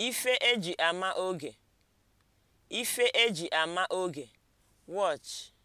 ife eji ama oge, ife eji ama oge, watch